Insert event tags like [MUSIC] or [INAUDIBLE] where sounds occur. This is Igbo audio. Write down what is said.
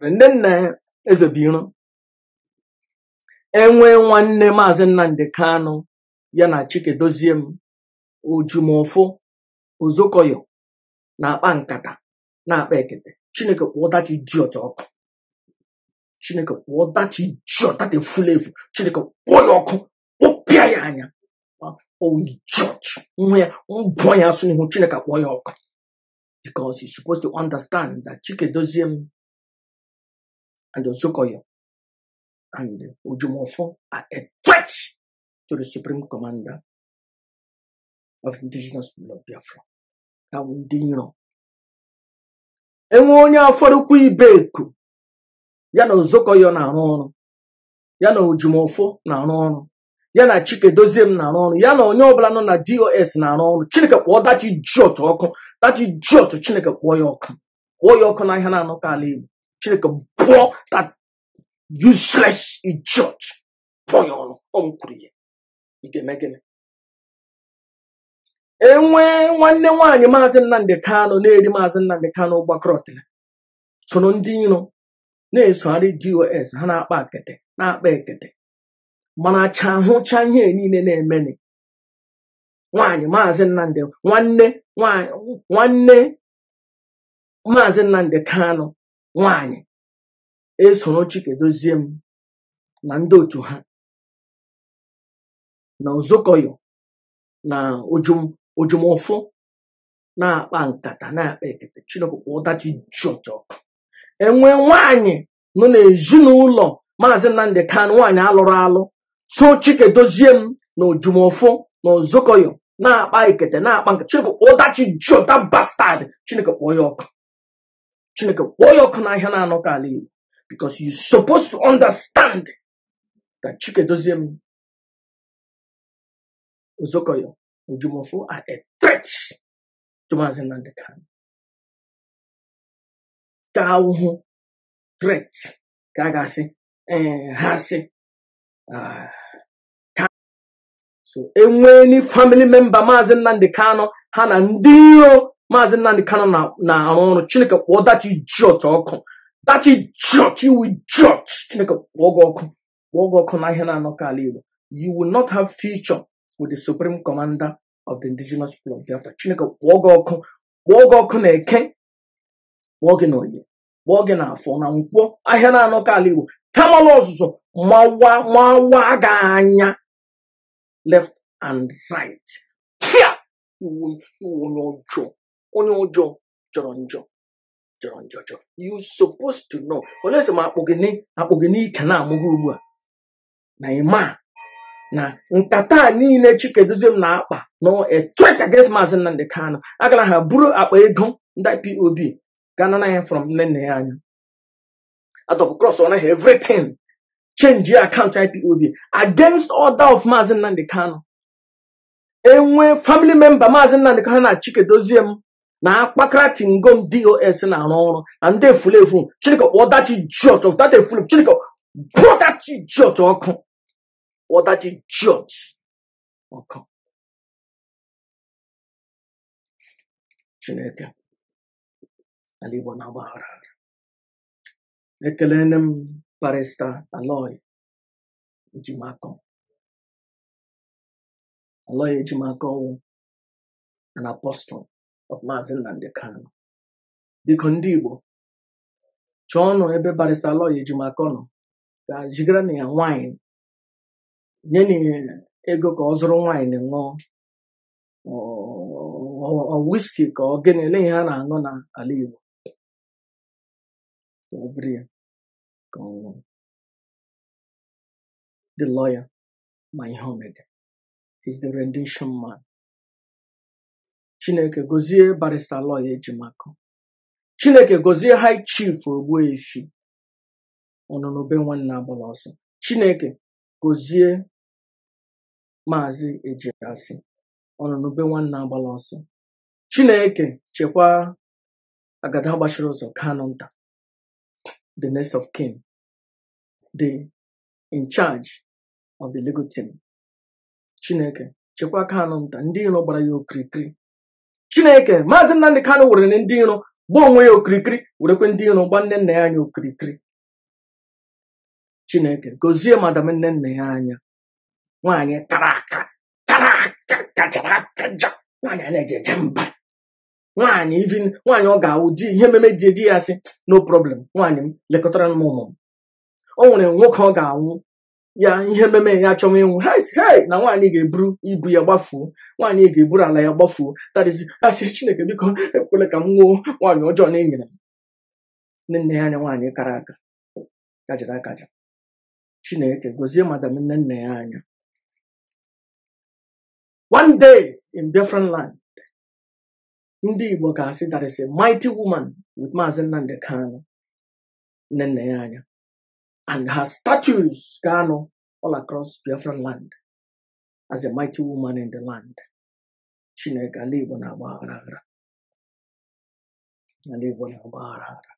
Ndị nna uh, eze biro enwee nwanne maazị nnamdị kanụ ya na chikedozie m ojumọfụ ozokoyo na-akpa nkata na-akpa ekete chineke kpụọ data idiot ọkụ chineke kpụọ data idiot data efula efu chineke kpụọ ya ọkụ kpụpịa ya anya idiot nwa ya mbụọ ya asụ ihu chineke kpụọ ya ọkụ m and Osokoyo and Ojumofo are a threat to the Supreme Commander of indigenous people of Biafra. Ka ndị iro. Enwe onye afọrụkwa ibe eku ya na Ozokoyo na-arụ ọrụ ya na Ojumofo na-arụ ọrụ ya na Chike Doziem na-arụ ọrụ ya na onye ọbụla nọ na DOS na-arụ ọrụ Chineke kpọọ dachi jiọt ọkụ ji jiọt Chineke kpọọ ya ọkụ kpọọ ya ọkụ n'ahịa na-anọkọ ala Igbo chineke pụọ that useless judge pụọ ya ọnụ ọnwụ kwuru ya ị nwanne nwaanyị maazị nnamdị Kano, na-eri maazị nnamdị Kano gbakọrọ soro ndị iro e, na-esogharị dos ha na-akpa akete na-akpa ekete mana acha ihe niile na-emeni nwaanyị maazị nnamdị nwanne nwanne maazị nnamdị Kano. nwaanyị esoro Chikedozie m na ndị otu ha na Uzokoyo na ojumofu na-akpa nkata na-akpa ekete Chineke kwa ụdachi ji ọkụ enwe nwaanyị nọ n'ezinụlọ maazị Nnamdi kan nwaanyị alụrụ alụ so Chikedozie m na ojumofu na Uzokoyo na-akpa ekete na-akpa nkata Chineke kwa ọdachi ji bastad Chineke kpọọ ya ọkụ chineke kpọọ ya ọkụ n'ahịa na-anọ ala igbo because you supposed to understand that Chike Chikedoziem Uzokoyo Ujumofo are a e threat to Mazinande Khan. Kawuhu threat kagasi eh, hasi. Ah, so enwe ni family member Mazinande Kano ha na ndị iro maazị nnamdi kano na-arụ ọrụ chineke kpọọ dachi jiọt ọkụ dachi jiọt iwu jiọt chineke kpọọ gị ọkụ kpọọ gị ọkụ na ihe na-anọkọ ala igbo you will not have future with the supreme commander of the indigenous people of biafra chineke kpọọ gị ọkụ kpọọ gị ọkụ na eke kpọọ gị na onye kpọọ gị na afọ na nkwọ ahịa na-anọkọ ala igbo kamala ọzụzụ mawa mawa gị anya left and right tia iwu iwu onye ọjọọ onye ụjọ jọrọ njọ jọrọ njọ jọrọ you supposed to know olesi m akpụ gị ike na-amụghị ugbu a na ịma na nkata niile Chikeduziem na-akpa na a threat against Maazị Nnamdi agara ha buru akpa ego ndị POB ganana ya from nne nna ya anya atọpụ cross ọ naghị everything change your IPOB against order of maazi Nnamdi Kano enwe family member maazi Nnamdi Kano na Chikeduziem na akpakara tingom dos na-arụ ọrụ na ndị efulefu chineke kpọọ that church of that efule chineke bụọ that church ọkụ kpọọ that ọkụ chineke ala igbo na-agbaghara ekele nne m parista aloy ejimakọ aloy ejimakọ ọnwụ an apostol of Maazị Nnamdi kano. biko ndị Igbo chọọ nụ ebe barịsta lọya ejimaka nọ ga jigara na ya nwaanyị nye na ego ka ọ zụrụ nwaanyị ṅụọ wiski ka ọ gịnị ele ihe a na-aṅụ n'ala Igbo the lawyer my homemade is the rendition man chineke gozie barista lọya ejimakụ chineke gozie high chief ogbuefi ọnụnụbe nwanne agbala ọsọ chineke gozie maazị ejiasị ọnụnụbe nwanne agbala ọsọ chineke chekwaa agada gbachiri ụzọ kano nta the next of kin the in charge of the legal team chineke chekwaa kano nta ndị iro gbara ya okirikiri chineke maazị nnamdị kano were ndị iro gba onwe ya okirikiri werekwe ndị iro gba nne nna ya anya okirikiri chineke gozie madam nne nna ya anya nwaanyị tara aka tara aka kachara aka ja nwaanyị a na-eje mba nwaanyị ivin nwaanyị ọ ga-awụ di ihe mmeme di di ya sị no problem nwaanyị m lekọtara m ụmụ m o nwere nwoke ọ ga-anwụ ya ihe mmemme ya achọwa ịnwụ hei na nwaanyị ga-eburu ibu ya gbafuo nwaanyị ga-eburu ala ya gbafuo tadizi [LAUGHS] asị chineke biko ekwela ka m nwuo nwaanyị ọjọọ na-enyere m nne nne ya anya nwaanyị kara aka kajara akaja chineke gozie madam nne nne ya anya one day in different land ndị Igbo ga-asị that a mighty woman with Maazị Nnamdi Kanu nne nne ya anya and her statues, Gano, all across Biafran land, as a mighty woman in the land. Chineke, Alibu na Agbahara. Alibu na Agbahara.